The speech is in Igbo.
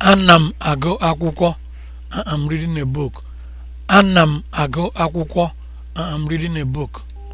Ana m agụ akwụkwọ. Uh, I am reading a book. m agụ akwụkwọ. am uh, reading a book.